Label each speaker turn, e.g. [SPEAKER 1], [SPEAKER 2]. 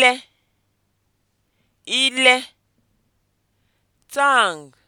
[SPEAKER 1] ile ile tang